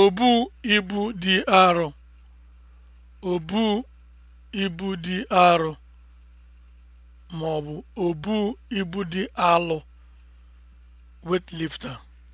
Obu ibu dị arọ. Obu ibu dị arọ ma ọ bụ obu ibu dị alọ (weightlifter)